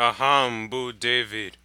Agha bu david.